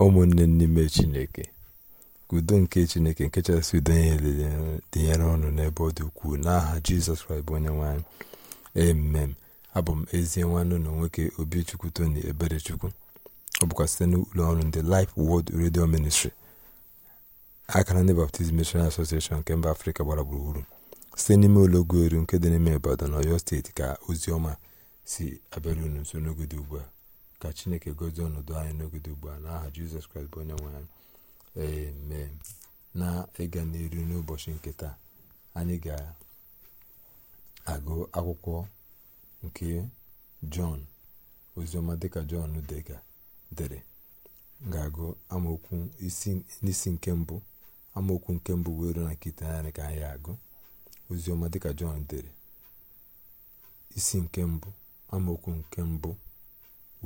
ụmụnne n'ime chineke udo nke chineke nke chasị udo ihe dịnyere ọnụ n'ebe ọ dị ukwuu n'aha jizọs kraịst bụ onye nwanyị emem abụ m ezie nwanne na nwoke obichukwu tony eberechukwu ọ bụkwa site n'ụlọ ọrụ ndị Life Word Radio Ministry akara ndị Baptist Mission Association nke mba afrịka gbara gburugburu site n'ime ụlọ eru nke dị n'ime Ibadan na Ọyọ steeti ka ozi ọma si abịara unu nso n'oge dị ugbu a ka chineke gozie ọnọdụ anyị n'ogede ugbu a n'aha jizọs kraịst bụ onye nwe anyị ee na ịga n'iru n'ụbọchị nke taa anyị ga-agụ akwụkwọ nke jọn oziọma dịka jọn dega dere ga-agụ amaokwu n'isi nke mbụ amaokwu nke mbụ wee ruo na nke iteghete ka anyị agụ oziọma dịka jọn dere isi nke mbụ amaokwu nke mbụ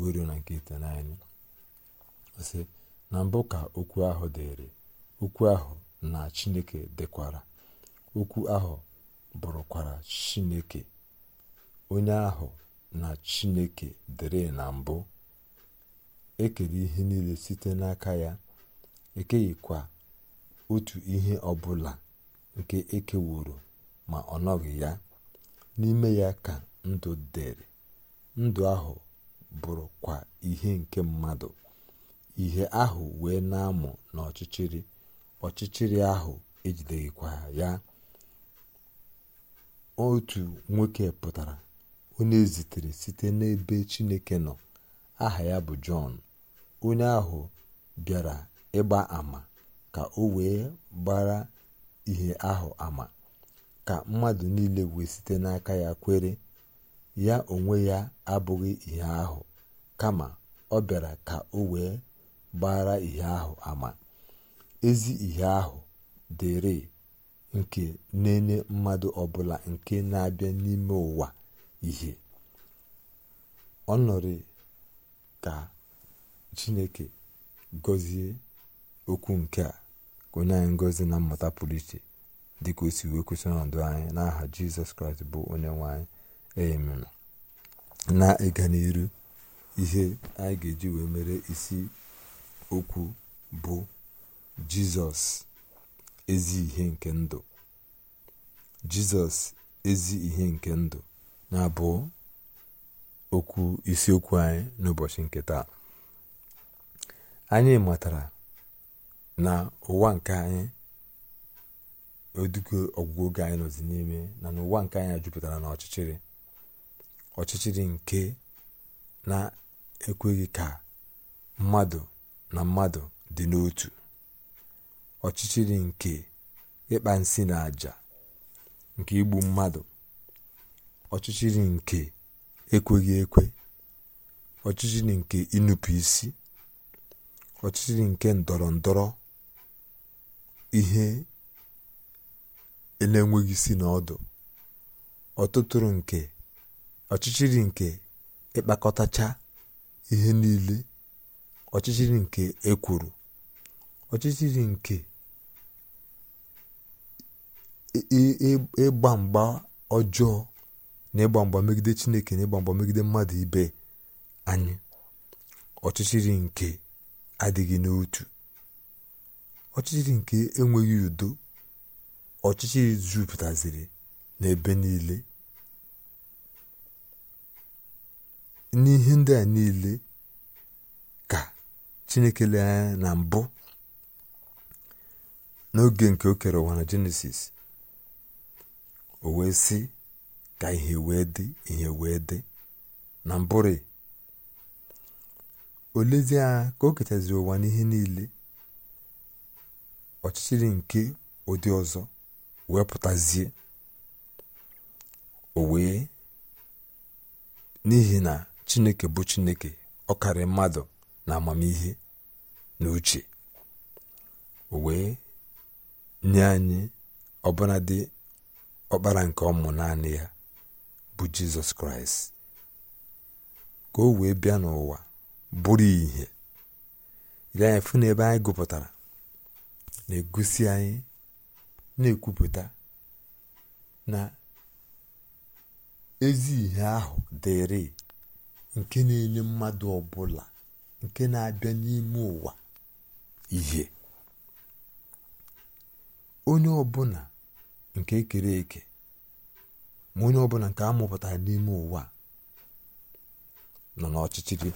wee na nke itenaịnị sị na mbụ ka okwu ahụ dịrị okwu ahụ na chineke dịkwara okwu ahụ bụrụkwara chineke onye ahụ na chineke dere na mbụ ekere ihe niile site n'aka ya ekeghịkwa otu ihe ọbụla nke ekewuru ma ọ nọghị ya n'ime ya ka ndụ dịrị ndụ ahụ bụrụkwa ihe nke mmadụ ihe ahụ wee na-amụ n'ọchịchịrị ọchịchịrị ahụ ejideghịkwa ya otu nwoke pụtara onye zitere site n'ebe chineke nọ aha ya bụ jọn onye ahụ bịara ịgba ama ka o wee gbara ihe ahụ ama ka mmadụ niile wee site n'aka ya kwere ya onwe ya abụghị ihe ahụ kama ọ bịara ka o wee gbara ihe ahụ ama ezi ihe ahụ dịrị nke na-enye mmadụ ọbụla nke na-abịa n'ime ụwa ihe ọ nọrị ka chineke gozie okwu nke a onye anyị ngozi na mmụta pụrụ iche dịka o si wee kwesịrị ọnọdụ anyị n'aha jizọs kraịst bụ onye nwe na ịga n'iru ihe anyị ga-eji wee mere isi okwu bụ jizọs ezi ihe nke ndụ jizọs ezi ihe nke ndụ na-abụ okwu isiokwu anyị n'ụbọchị nke taa anyị matara na ụwa nke anyị odugo ọgwụgwụ oge anyị nọzi n'ime na ụwa nke anyị jupụtara na ọchịchịrị ọchịchịrị nke na-ekweghị ka mmadụ na mmadụ dị n'otu ọchịchịrị nke ịkpa nsị na àjà nke igbu mmadụ ọchịchịrị nke ekweghị ekwe ọchịchịrị nke ịnụpụ isi ọchịchịrị nke ndọrọ ndọrọ ihe e na-enweghị isi na ọdụ ọtụtụrụ nke ọchịchịrị nke ịkpakọtacha ihe niile ọchịchịrị nke ekwuru ọchịchịrị nke ịgba mgba ọjọọ na ịgba mgba megide chineke na ịgba mgba megide mmadụ ibe anyị ọchịchịrị nke adịghị n'otu ọchịchịrị nke enweghị udo ọchịchịrị jupụtaziri n'ebe niile n'ihe ndị a niile ka chineke lee na mbụ n'oge nke o kere ụwa na jenesis o wee sị ka ihe wee dị ihe wee dị na mbụrị olezie ka o kechaziri ụwa n'ihe niile ọchịchịrị nke ụdị ọzọ wee pụtazie o wee n'ihi na chineke bụ chineke ọkarị mmadụ na amamihe na uche wee nye anyị dị ọkpara nke ọmụ naanị ya bụ jizọs kraịst ka o wee bịa n'ụwa bụrụ ihe ile anyị fụ n'ebe anyị gụpụtara na-egosi anyị na-ekwupụta na ezi ihe ahụ dịrị nke na-enye mmadụ ọbụla nke na-abịa n'ime ụwa ihe onye ọbụla nke kere eke ma onye ọbụla nke amụpụtara n'ime ụwa nọ n'ọchịchịrị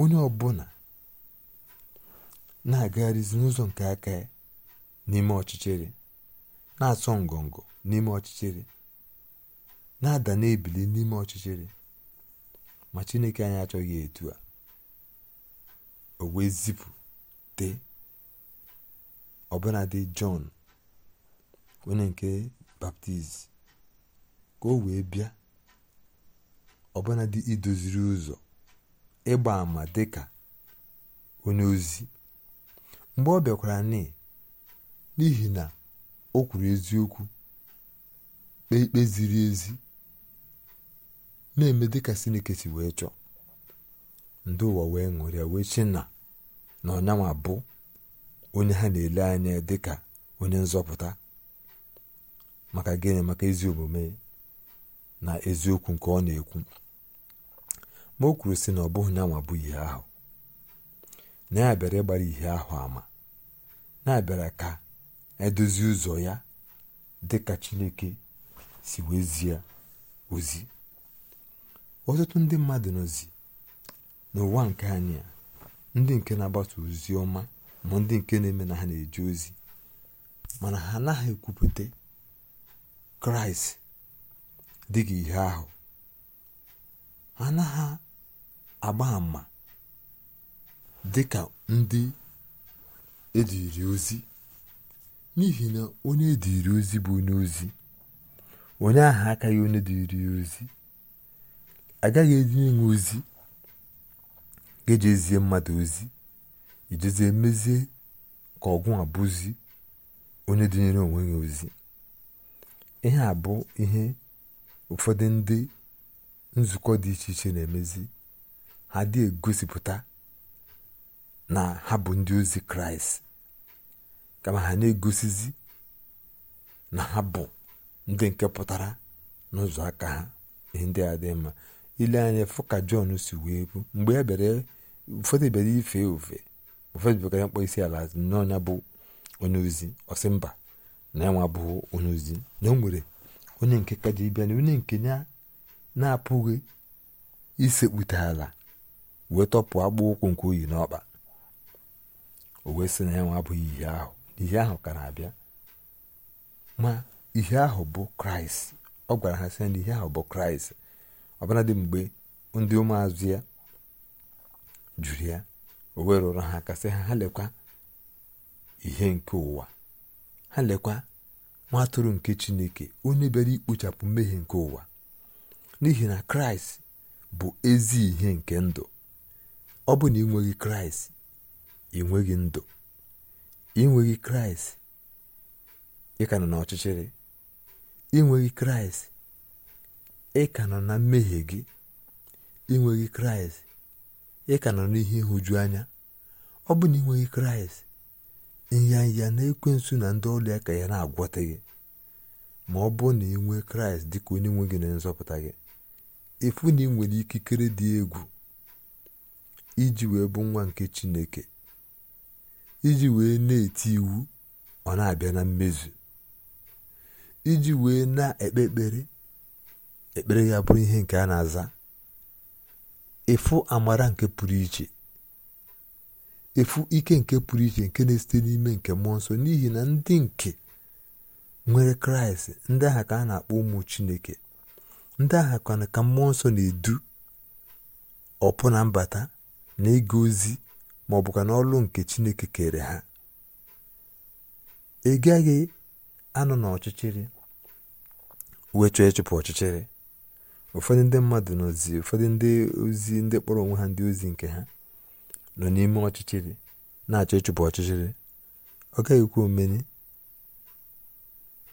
onye ọbụla na-agagharịzi n'ụzọ nke aka ya n'ime ọchịchịrị na-asọ ngọngọ n'ime ọchịchịrị na-ada na-ebili n'ime ọchịchịrị ma chineke anyị achọghị etu a o wee zipụte dị jọn onye nke baptizim ka o wee bịa dị idoziri ụzọ ịgba ama dịka onye ozi mgbe ọ bịakwara n'ihi na o kwuru eziokwu kpee ikpe ziri ezi na-eme dịka sinike si wee chọọ ndị ụwa wee ṅụrịa wee chi na na ọnyanwa bụ onye ha na-ele anya dịka onye nzọpụta maka gịnị maka ezi omume na eziokwu nke ọ na-ekwu ma o kwuru sị na ọ bụghị nyanwa bụ ihe ahụ na ya bịara ịgbara ihe ahụ ama na-abịara ka edozi ụzọ ya dịka chineke si wezie ozi ọtụtụ ndị mmadụ nọzi n'ụwa nke anyị ndị nke na-agbasa ozi ọma ma ndị nke na-eme na ha na-eje ozi mana ha anaghị ekwupụta kraịst dịka ihe ahụ ha anaghị agba dị ka ndị ediri ozi n'ihi na onye ediri ozi bụ onye ozi onye aka akaghị onye dịrị ozi agaghị eji ịṅụ ozi ga-eji ezie mmadụ ozi ijezie emezie ka ọgwụ abụzi onye dịnyere onwe ya ozi ihe a bụ ihe ụfọdụ ndị nzukọ dị iche iche na-emezi ha dị egosipụta na ha bụ ndị ozi kraịst kama ha na-egosizi na ha bụ ndị nke pụtara n'ụzọ aka ha ihe ndị a dị mma ile anya fụ ka jọn si wee bụ mgbe ya e bịara ụfọdụ e bịara ife ofe ụfọdụ bịara mkpọ isi ala n'ọnya bụ onye ozi ọsị mba na ya nwa bụ onye ozi na o nwere onye nke ka ji bịa na onye nke ya na-apụghị isekpute ala wee tọpụ agbụ ụkwụ nke oyi n'ọkpa o wee sị na ya nwa abụghị ihe ahụ ihe ahụ ka na-abịa ma ihe ahụ bụ kraịst ọ gwara ha sị na ihe ahụ bụ kraịst dị mgbe ndị ụmụazụ ya jụrụ ya o wee rụrụ ha kasị ha ha lekwa ihe nke ụwa ha lekwa nwa atụrụ nke chineke onye bịara ikpochapụ mmehie nke ụwa n'ihi na kraịst bụ ezi ihe nke ndụ ọ bụ na ịnweghị kraịst ịnweghị ndụ ịnweghị kraịst ị nọ n'ọchịchịrị ịnweghị kraịst ị ka nọ na mmehie gị inweghị kraịst ị ka nọ n'ihe ịhụju anya ọ bụ na ịnweghị kraịst ịnyanya na ekwensu na ndị ọrụ ya ka ya na-agwọta gị ma ọ bụ na ị kraịst dị ka onye nwe gị na nzọpụta gị efu na ị nwere ikikere dị egwu iji wee bụ nwa nke chineke iji wee na-eti iwu ọ na-abịa na mmezu iji wee na-ekpe ekpere ya bụrụ ihe nke a na-aza efu amara nke pụrụ iche efu ike nke pụrụ iche nke na-esite n'ime nke mmụọ nsọ n'ihi na ndị nke nwere kraịst ndị aha ka a na-akpọ ụmụ chineke ndị aha kwana ka mmụọ nsọ na-edu ọpụ na mbata na ịga ozi ma ọ na n'ọlụ nke chineke kere ha ị gaghị anọ n'ọchịchịrị wee chọọ ịchụpụ ọchịchịrị ụfọdụ ndị mmadụ nọzi ụfọdụ ndị ozi ndị kpọrọ onwe ha ndị ozi nke ha nọ n'ime ọchịchịrị na-achọ ịchụpụ ọchịchịrị ọ gaghị omeni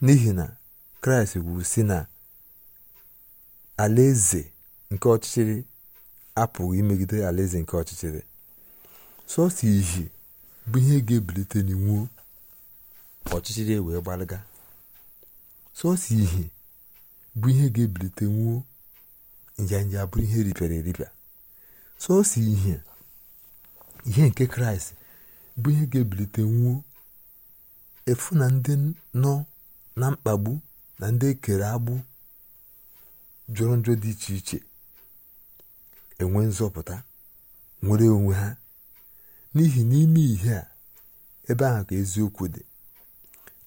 n'ihi na kraịst gwuru si na alaeze nke ọchịchịrị apụghị imegide alaeze nke ọchịchịrị sọsọ ihe bụ ihe ga-ebilite ọchịchịrị e wee gbalịga sọsọ ihe bụ ihe ga-ebilite nwuo njanja bụrụ ihe ripịara eripịa sọsọ ihe ihe nke kraịst bụ ihe ga-ebilite nwuo efu na ndị nọ na mkpagbu na ndị ekere agbụ jụrụ njọ dị iche iche enwe nzọpụta nwere onwe ha n'ihi n'ime ihe a ebe ahụ ka eziokwu dị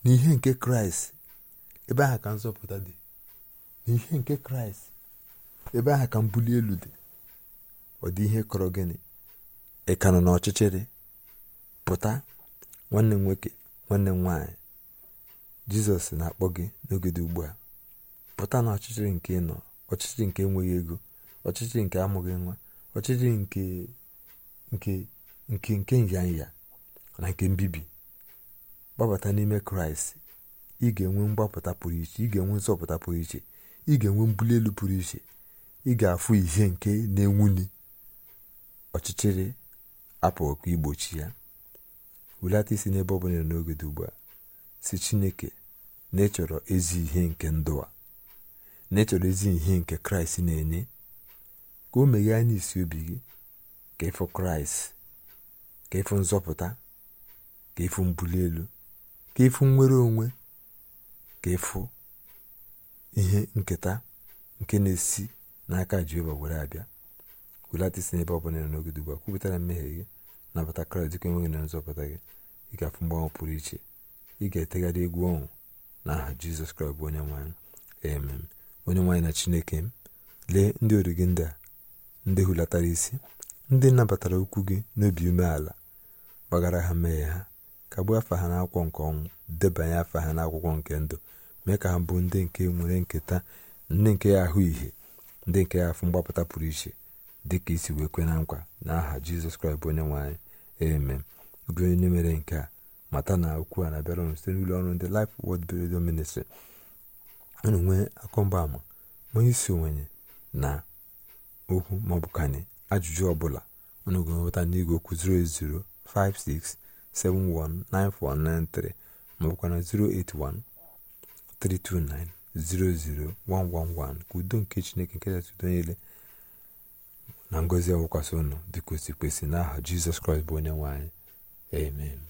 n'ihe nke kraịst ebe ahụ ka nzọpụta dị n'ihe nke kraịst ebe ahụ ka mbuli elu dị ọ dị ihe kọrọ gịnị ị ka nọ n'ọchịchịrị pụta nwanne m nwoke nwanne m jizọs na-akpọ gị n'oge dị ugbu a pụta na ọchịchịrị nke ị nọ ọchịchịrị nke enweghị ego ọchịchịrị nke amụghị nwa ọchịchịrị nke nke nke nke nyanya na nke mbibi gbabata n'ime kraịst ị ga-enwe mgbapụta pụrụ iche ị ga-enwe nzọpụta pụrụ iche ị ga-enwe mbuli elu pụrụ iche ị ga-afụ ihe nke na enwunye ọchịchịrị apụghịkwa igbochi ya wulata isi n'ebe ọ bụla n'oge dị ugbu a si chineke na ịchọrọ ezi ihe nke ndụ a na ịchọrọ ezi ihe nke kraịst na-enye ka o meghee anya isi obi gị ka ịfụ kraịst ka ịfụ nzọpụta ka ịfụ mbuli elu ka ịfụ nnwere onwe ka ịfụ ihe nketa nke na-esi n'aka jehova were abịa welata isi n'ebe ọ bụla nọ n'oge dị a kwupụtara mmehie gị nabata kraịst dịka enweghị na nzọpụta gị ị ga-afụ mgbanwe pụrụ iche ị ga-etegharị egwu ọnwụ na aha jizọs kraịst bụ onye nwanyị amen onye nwanyị na chineke m lee ndị ọrụ gị ndị a ndị hulatara isi ndị nabatara okwu gị n'obi umeala gbagara ha mmehie ha kagbuo afa ha akwụkwọ nke ọnwụ debanye afa ha n'akwụkwọ nke ndụ mee ka ha bụ ndị nke nwere nketa ndị nke ya ahụ ihe ndị nke ya fụ mgbapụta pụrụ iche dị ka isi wee kwe na nkwa n'aha aha jizọs kraịst bụ onye nwanyị anyị eme gị onye mere nke a mata na okwu a na-abịara site n'ụlọ ọrụ ndị Life wod Radio Ministry unu nwee ama onye isi onwenye na okwu maọbụ ajụjụ ọbụla unu ga-enweta n'igwe okwu 08056719493 maọbụkwa maọbụkwana 081 329 00111 ka udo nke chineke nke kachasị udo niile na ngozi awụkwasị ụnụ dịka osi kwesị n'aha jizọs kraịst bụ onye nwe anyị amen